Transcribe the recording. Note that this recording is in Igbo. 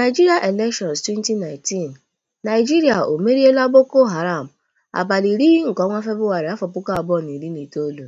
nigeria Elections 2019: nigeria o meriela Boko Haram, abalị iri nke ọnwa Febụwarị, itoolu